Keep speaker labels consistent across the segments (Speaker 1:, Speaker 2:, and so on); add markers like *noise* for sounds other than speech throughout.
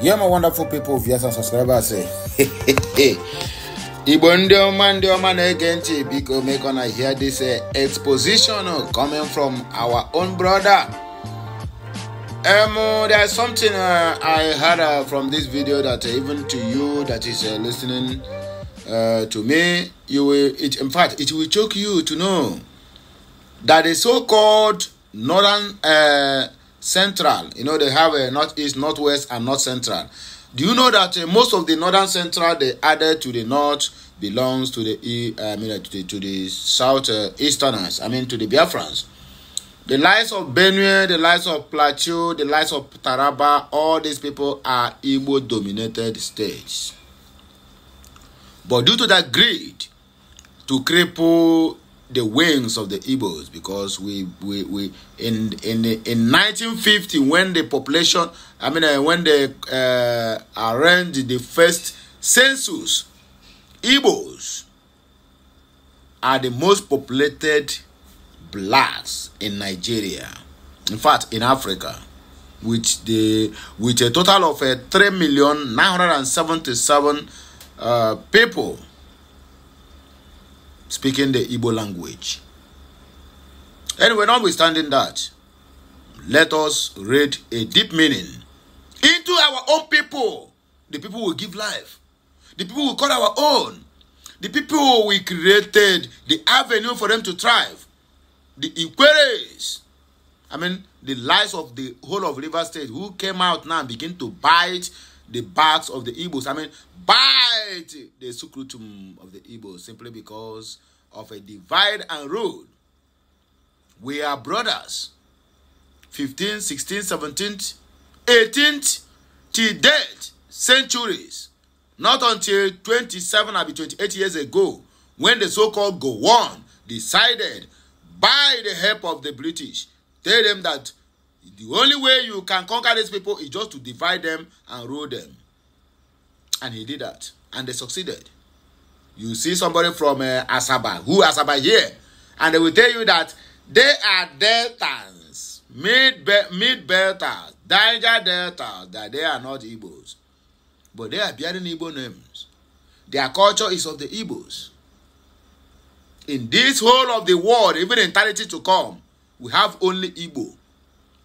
Speaker 1: Yeah, my wonderful people, viewers and subscribers. Eh, Igbo ndị ọma ndị ọma na-ege eh, ntị biko make una hear this uh, exposition uh, coming from our own brother. Um, there is something uh, I heard uh, from this video that uh, even to you that is uh, listening uh, to me, you will, it, in fact, it will choke you to know that the so-called northern uh, Central. You know, they have a north, east, north west, and north central. Do you know that uh, most of the northern central they added to the north belongs to the e, uh, I mean, uh, to the, to the south uh, easterners. I mean, to the Biafrans. The lives of Benue, the lives of Plateau, the lives of Taraba, all these people are Igbo dominated states. But due to that greed to cripple the wings of the Igbos because we we, we in in in 1950 when the population I mean uh, when they uh, arranged the first census, Igbos are the most populated blacks in Nigeria. In fact, in Africa, with the with a total of uh, three million nine hundred and seventy seven uh, people speaking the Igbo language. Anyway, notwithstanding that, let us read a deep meaning into our own people. The people will give life. The people will call our own. The people we created the avenue for them to thrive. The inquiries. I mean, the lies of the whole of River State who came out now and begin to bite the backs of the Igbos. I mean, bite the sukrutum of the Igbos simply because of a divide and rule. We are brothers. 15th, 16th, 17th, 18th, till date, centuries. Not until 27 or 28 years ago, when the so-called Gowon decided, by the help of the British, tell them that The only way you can conquer these people is just to divide them and rule them. And he did that. And they succeeded. You see somebody from uh, Asaba, who Asaba here, and they will tell you that they are deltas, mid mid deltas, Niger deltas, that they are not Igbos. But they are bearing Igbo names. Their culture is of the Igbos. In this whole of the world, even in eternity to come, we have only Igbo.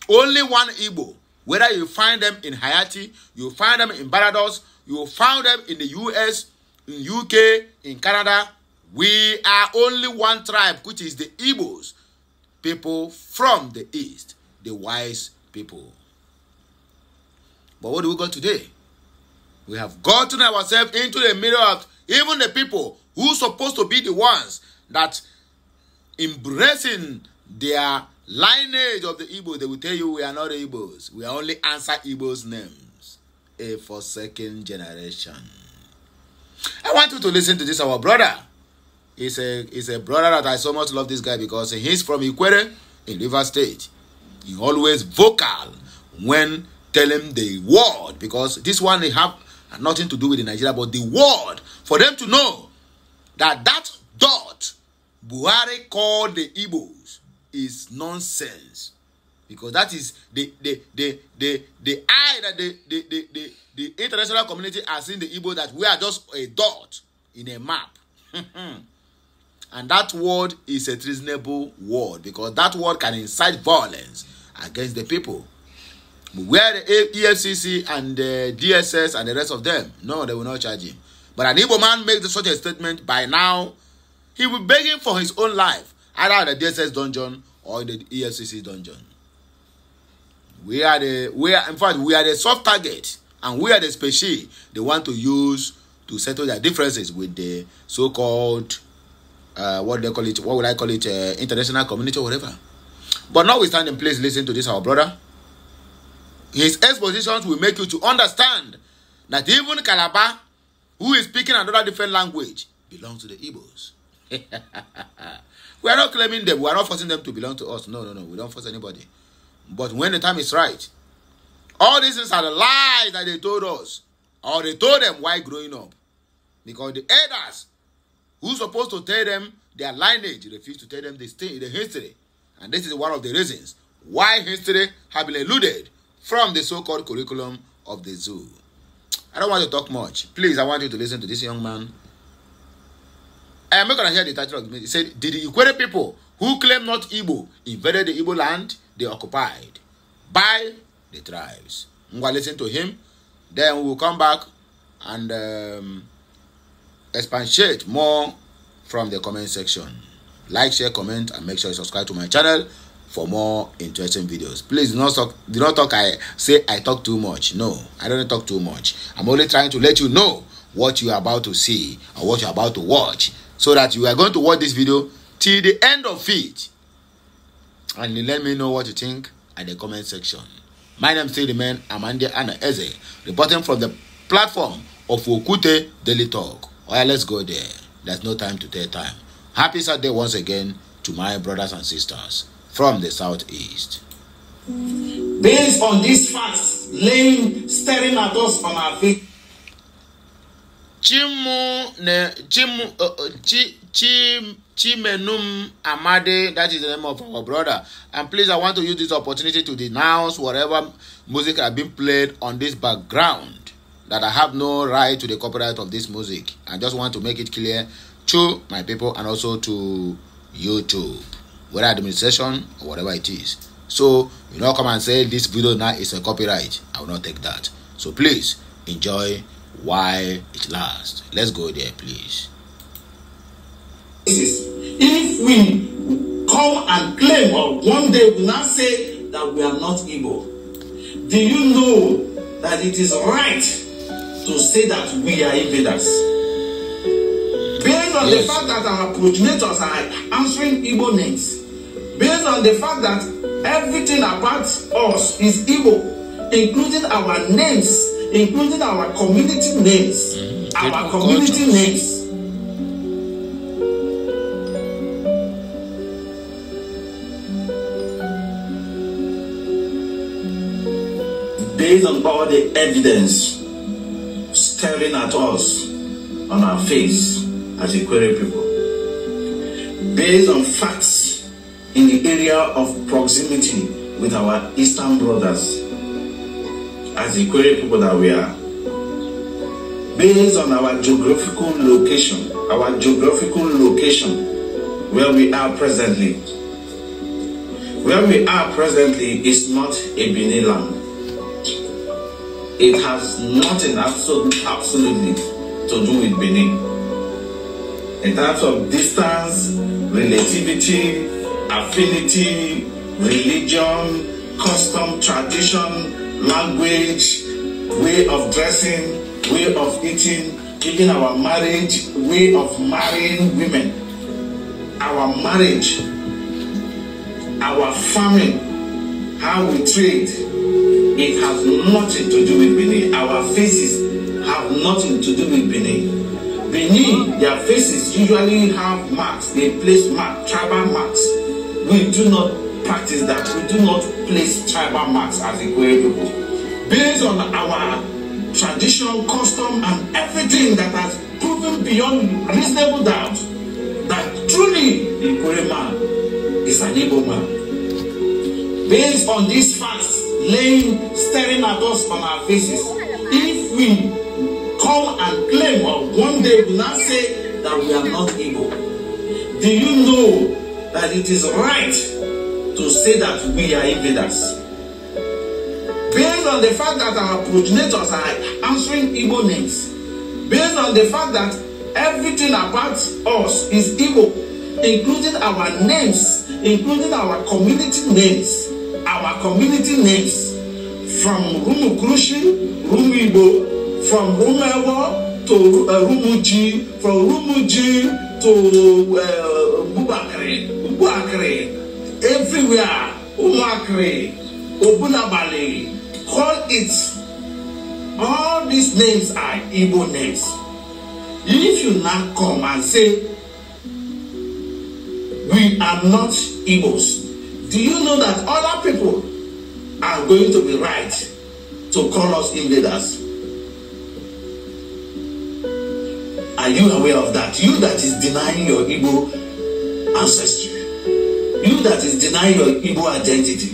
Speaker 1: Only one Igbo. Whether you find them in Haiti, you find them in Barbados, you find them in the US, in UK, in Canada. We are only one tribe, which is the Igbos, people from the East, the wise people. But what do we got today? We have gotten ourselves into the middle of even the people who supposed to be the ones that embracing their lineage of the Igbo, they will tell you we are not Igbos. We are only answer Igbos' names. A for second generation. I want you to listen to this, our brother. He's a, he's a brother that I so much love this guy because he's from Ikwere in River State. He always vocal when telling the word because this one they have nothing to do with Nigeria, but the word for them to know that that dot Buhari called the Igbos is nonsense because that is the the the the the eye that the the the the, the international community has seen the Igbo that we are just a dot in a map. *laughs* and that word is a treasonable word because that word can incite violence against the people. Where the EFCC and the DSS and the rest of them, no, they will not charge him. But an Igbo man makes such a statement by now, he will be begging for his own life. either in the DSS dungeon or in the EFCC dungeon. We are the we are in fact we are the soft target and we are the species they want to use to settle their differences with the so-called uh, what they call it what would I call it uh, international community or whatever. But now we stand notwithstanding, please listen to this, our brother. His expositions will make you to understand that even Calabar, who is speaking another different language, belongs to the Igbos. *laughs* we are not claiming them. We are not forcing them to belong to us. No, no, no. We don't force anybody. But when the time is right, all these things are the lies that they told us, or they told them Why growing up. Because the elders who's supposed to tell them their lineage refuse to tell them the, the history. And this is one of the reasons why history have been eluded from the so-called curriculum of the zoo. I don't want to talk much. Please, I want you to listen to this young man Eh, I am not gonna hear the title of the meeting. It said, Did the Ikwere people who claim not Igbo invaded the Igbo land they occupied by the tribes? Ngwa, listen to him. Then we will come back and um, expatiate more from the comment section. Like, share, comment, and make sure you subscribe to my channel for more interesting videos. Please do not talk, do not talk I say I talk too much. No, I don't talk too much. I'm only trying to let you know what you are about to see or what you are about to watch so that you are going to watch this video till the end of it and let me know what you think at the comment section my name still remain amande ana eze reporting from the platform of okute daily talk oya let's go there there's no time to take time happy saturday once again to my brothers and sisters from the
Speaker 2: southeast. based on these facts laying staring at us from our feet. Chimu ne Chimu uh,
Speaker 1: uh, Chi Chi Chimenum Amade. That is the name of our brother. And please, I want to use this opportunity to denounce whatever music has been played on this background. That I have no right to the copyright of this music. I just want to make it clear to my people and also to YouTube, whether administration or whatever it is. So you know, come and say this video now is a copyright. I will not take that. So please enjoy while it lasts. Let's go there, please.
Speaker 2: If we come and claim, or one day we now say that we are not evil, do you know that it is right to say that we are invaders? Based on yes. the fact that our progenitors are answering evil names, based on the fact that everything about us is evil, including our names including our community names. Mm, our community names. Based on all the evidence staring at us on our face as a people, based on facts in the area of proximity with our Eastern brothers as Ikwere people that we are, based on our geographical location, our geographical location where we are presently. Where we are presently is not a Benin land. It has nothing absolutely, absolutely to do with Benin. In terms of distance, relativity, affinity, religion, custom, tradition, language, way of dressing, way of eating, even our marriage, way of marrying women, our marriage, our farming, how we trade, it has nothing to do with Benin. Our faces have nothing to do with Benin. Benin, their faces usually have marks, they place marks, tribal marks. We do not practice that we do not place tribal marks as Igwe people. Based on our traditional custom, and everything that has proven beyond reasonable doubt that truly Igwe man is an able man. Based on these facts laying staring at us on our faces, if we come and claim or one day will not say that we are not able, do you know that it is right to say that we are invaders. Based on the fact that our progenitors are answering evil names, based on the fact that everything about us is evil, including our names, including our community names, our community names, from Rumukurushi, Rumibo, from Rumewo to uh, Rumuji, from Rumuji to uh, Bubakri, Bubakri, everywhere umuakre Obunabale, call it all these names are igbo names if you now come and say we are not igbos do you know that other people are going to be right to call us invaders are you aware of that you that is denying your igbo ancestry You that is denying your Igbo identity,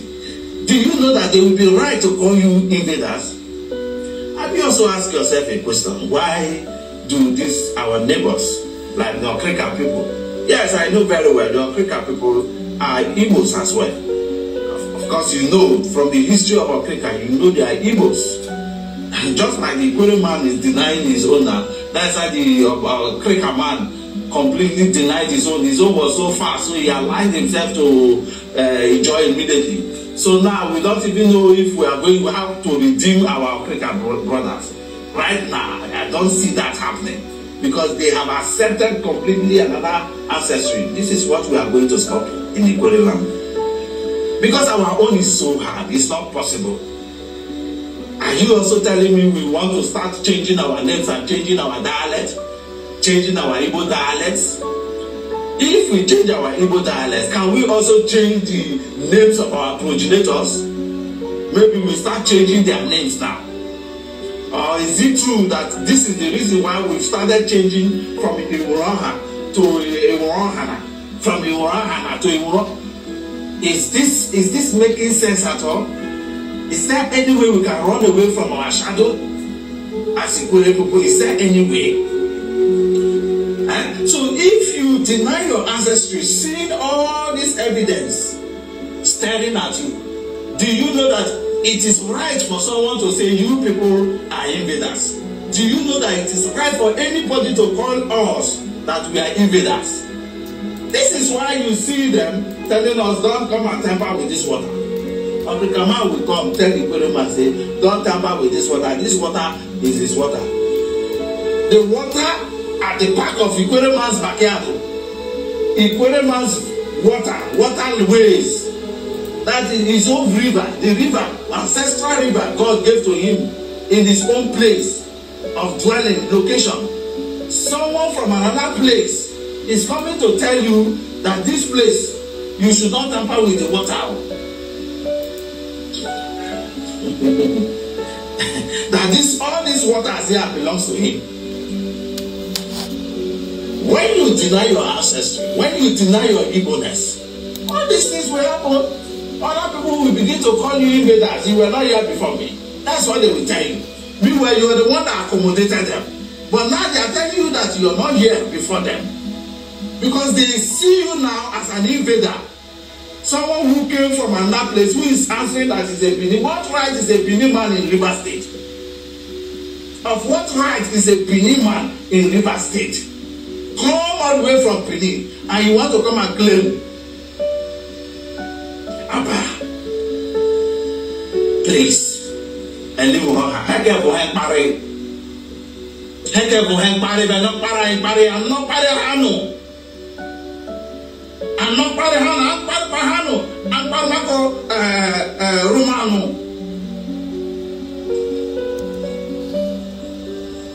Speaker 2: do you know that they will be right to call you invaders? And you also ask yourself a question why do this our neighbors, like the Okrika people? Yes, I know very well the Okrika people are Igbos as well. Of, course, you know from the history of Okrika, you know they are Igbos. *laughs* just like the Ikwere man is denying his owner, that's why the uh, uh, Okrika man completely denied his own. His own was so fast, so he aligned himself to uh, enjoy immediately. So now we don't even know if we are going how to redeem our African brothers. Right now, I don't see that happening because they have accepted completely another accessory. This is what we are going to stop in Igbo land. Because our own is so hard, it's not possible. Are you also telling me we want to start changing our names and changing our dialect? changing our Igbo dialects? If we change our Igbo dialects, can we also change the names of our progenitors? Maybe we start changing their names now. Or is it true that this is the reason why we started changing from Iwuroha to Iwurohana, from Iwurohana to Iwuro? Is this is this making sense at all? Is there any way we can run away from our shadow? As Ikwere people, is there any way? deny your ancestry, seeing all this evidence staring at you, do you know that it is right for someone to say you people are invaders? Do you know that it is right for anybody to call us that we are invaders? This is why you see them telling us, don't come and tamper with this water. African man will come tell the Igbo man, say, don't tamper with this water. This water is his water. The water at the back of Igbo man's backyard Ikwereman's water, waterways. That is his own river, the river, ancestral river God gave to him in his own place of dwelling, location. Someone from another place is coming to tell you that this place, you should not tamper with the water. *laughs* that this all these waters here belongs to him. When you deny your ancestry, when you deny your Igbo-ness, all these things will happen. Other people will begin to call you invaders. You were not here before me. That's what they will tell you. Meanwhile, you are the one that accommodated them. But now they are telling you that you are not here before them. Because they see you now as an invader. Someone who came from another place who is answering that is a Benin. What right is a Benin man in River State? Of what right is a Benin man in River State? come all the way from Benin and you want to come and claim Abba, please, ẹni wò hàn hẹ́kẹ́ bò hẹ́ parí hẹ́kẹ́ bò hẹ́ parí bẹ́ẹ̀ náà para ẹ̀ parí àná parí hànú àná parí hànú àpárùpá hànú àpárùmákọ rúmánù.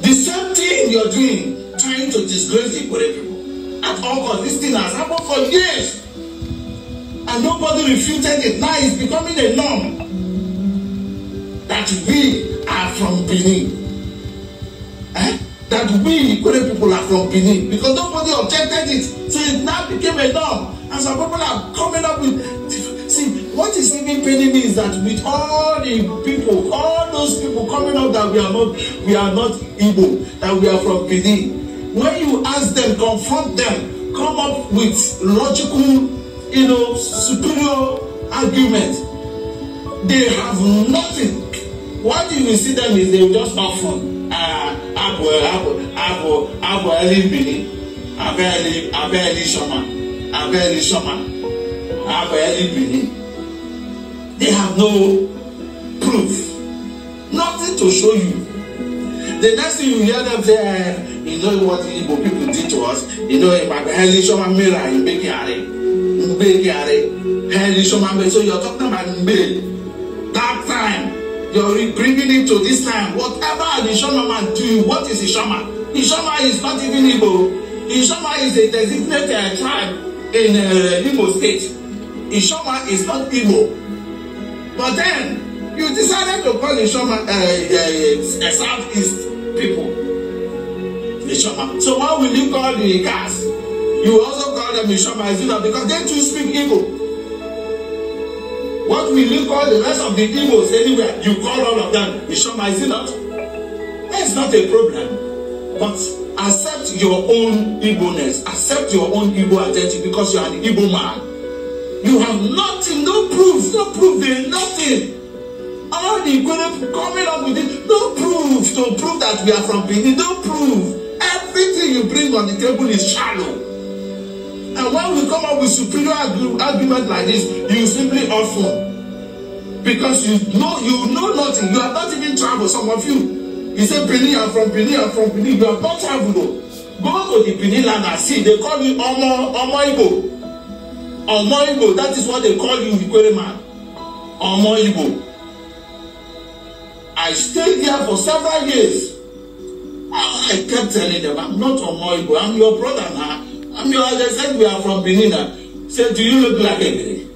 Speaker 2: The same thing you're doing trying to disgrace the Ikore people. At all costs, this thing has happened for years. And nobody refuted it. Now it's becoming a norm that we are from Benin. Eh? That we Ikore people are from Benin. Because nobody objected it. So it now became a norm. And some people are coming up with. See, what is even paining me is that with all the people, all those people coming up that we are not, we are not Igbo, that we are from Benin when you ask them confront them come up with logical you know superior argument they have nothing one thing you see them is they just talk fun ah abo abo abo abo eli bini abe eli abe eli soma abe eli soma abo eli bini they have no proof nothing to show you the next thing you hear them say eh. You know what Igbo people did to us? You know, Maka Henry Shoman Mira in Bekiare. Mbekiare. Henry Shoman So you're talking about Mbe. That time. You're bringing it to this time. Whatever an Ishama man do, what is Ishama? Ishama is not even Igbo. Ishama is a designated tribe in uh, Imo State. Ishama is not Igbo. But then, you decided to call Ishama uh, uh, uh Southeast people. Mishama. Uh, so why will you call the cars? You also call them Mishama, is it not? Because they too speak Igbo. What will you call the rest of the Igbos anywhere? You call all of them Mishama, is it not? That's not a problem. But accept your own Igbo-ness. Accept your own Igbo identity because you are an Igbo man. You have nothing, no proof, no proof, there nothing. All the equivalent coming up with it, no proof to prove that we are from Benin, no proof everything you bring on the table is shallow. And when we come up with superior argu argument like this, you simply offer. Because you know you know nothing. You are not even traveled, some of you. You say Benin, I'm from Benin, I'm from Benin. You are not traveled though. Go to the Benin land and see. They call you Omo Omo Igbo. Omo Igbo, that is what they call you, Ikwere man. Omo Igbo. I stayed there for several years. I kept telling them, I'm not Omoibo, I'm your brother now. I'm your, As I said we are from Benin. I said, do you look like a Benin?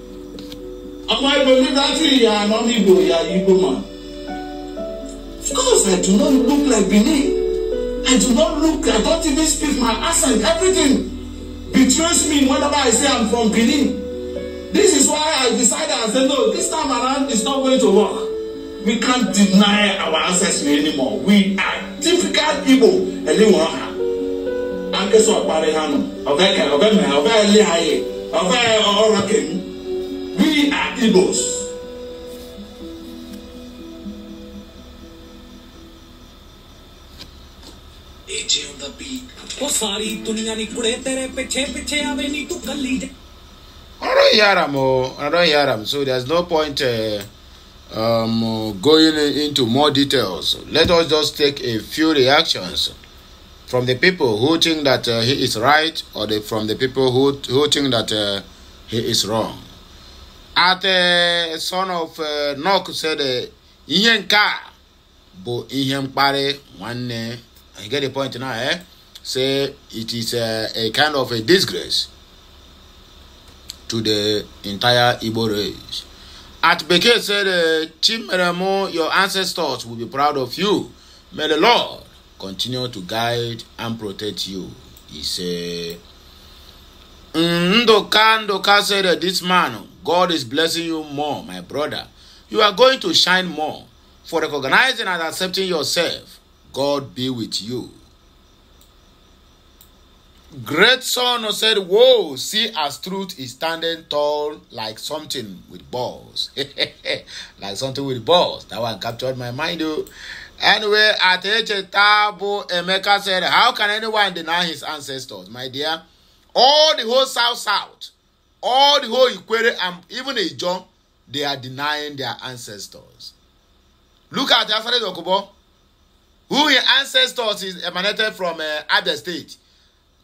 Speaker 2: Omoibo, look at you, you are an Igbo, you are Igbo man. Of course, I do not look like Benin. I do not look, I don't even speak my accent. Everything betrays me whenever I say I'm from Benin. This is why I decided, I said, no, this time around it's not going to work. We can't deny our ancestry anymore. We are difficult people ɛne wɔn ha ankasa ɔkpari ha no ɔbɛ ka ɔbɛ mɛ ɔbɛ ɛli ha yɛ ɔbɛ ɔrɔ kɛmu we are igbos. ਉਹ ਸਾਰੀ ਦੁਨੀਆ ਨਹੀਂ ਕੁੜੇ ਤੇਰੇ ਪਿੱਛੇ ਪਿੱਛੇ ਆਵੇ ਨਹੀਂ ਤੂੰ
Speaker 1: Yaram. So there's no point. Uh... um, going into more details, let us just take a few reactions from the people who think that uh, he is right or the, from the people who, who think that uh, he is wrong. At the uh, son of uh, Nok said, uh, Ihe nke a bụ I get the point now, eh? Say it is a, uh, a kind of a disgrace to the entire Igbo race. At Beke said, eh, Chimeremo, your ancestors will be proud of you. May the Lord continue to guide and protect you. He said, Ndoka, Ndoka said, eh, this man, God is blessing you more, my brother. You are going to shine more for recognizing and accepting yourself. God be with you. great son said, Whoa, see as truth is standing tall like something with balls. *laughs* like something with balls. That one captured my mind, though. Anyway, at Tabo Emeka said, How can anyone deny his ancestors, my dear? All the whole South South, all the whole Ikwere, and even Ijon, they are denying their ancestors. Look at Alfred Okubo, who his ancestors is emanated from uh, Abia State.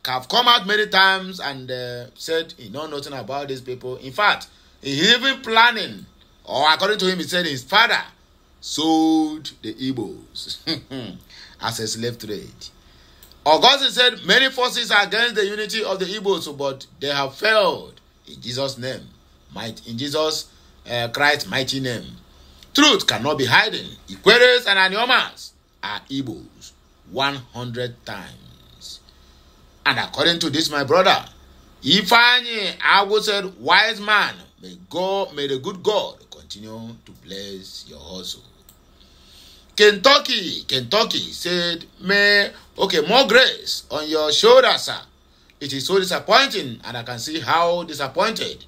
Speaker 1: have come out many times and uh, said he know nothing about these people. In fact, he even planning, or according to him, he said his father sold the Igbos *laughs* as a slave trade. Augustine said many forces are against the unity of the Igbos, but they have failed in Jesus' name, might in Jesus uh, Christ's mighty name. Truth cannot be hidden. Equators and Aniomas are Igbos 100 times. And according to this, my brother, Ifanyi Awo said, Wise man, may God, may the good God continue to bless your hustle. Kentucky, Kentucky said, May, okay, more grace on your shoulders, sir. It is so disappointing, and I can see how disappointed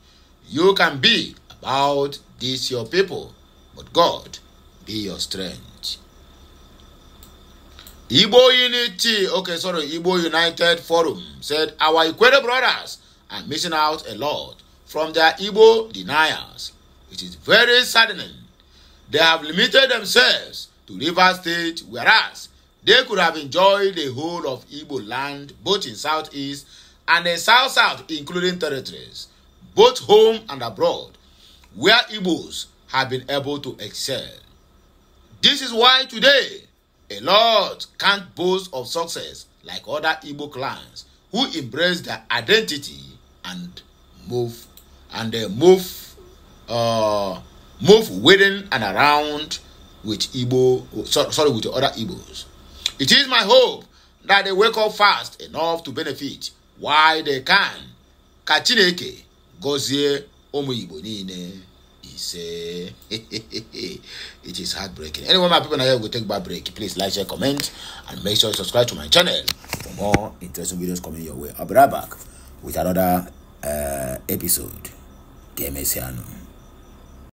Speaker 1: you can be about this, your people. But God, be your strength. Igbo Unity, okay, sorry, Igbo United Forum said our Ikwere brothers are missing out a lot from their Igbo deniers. It is very saddening. They have limited themselves to River State, whereas they could have enjoyed the whole of Igbo land, both in Southeast and in South South, including territories, both home and abroad, where Igbos have been able to excel. This is why today A lot can't boast of success like other Igbo clans who embrace their identity and move and they uh, move uh, move within and around with Igbo sorry, sorry with the other Igbos. It is my hope that they wake up fast enough to benefit while they can. Ka Chineke gọzie ụmụ Igbo niile is *laughs* it is heartbreaking. Anyway, my people, now we we'll take a break. Please like, share, comment, and make sure you subscribe to my channel for more interesting videos coming your way. I'll be right back with another uh, episode. Game is here.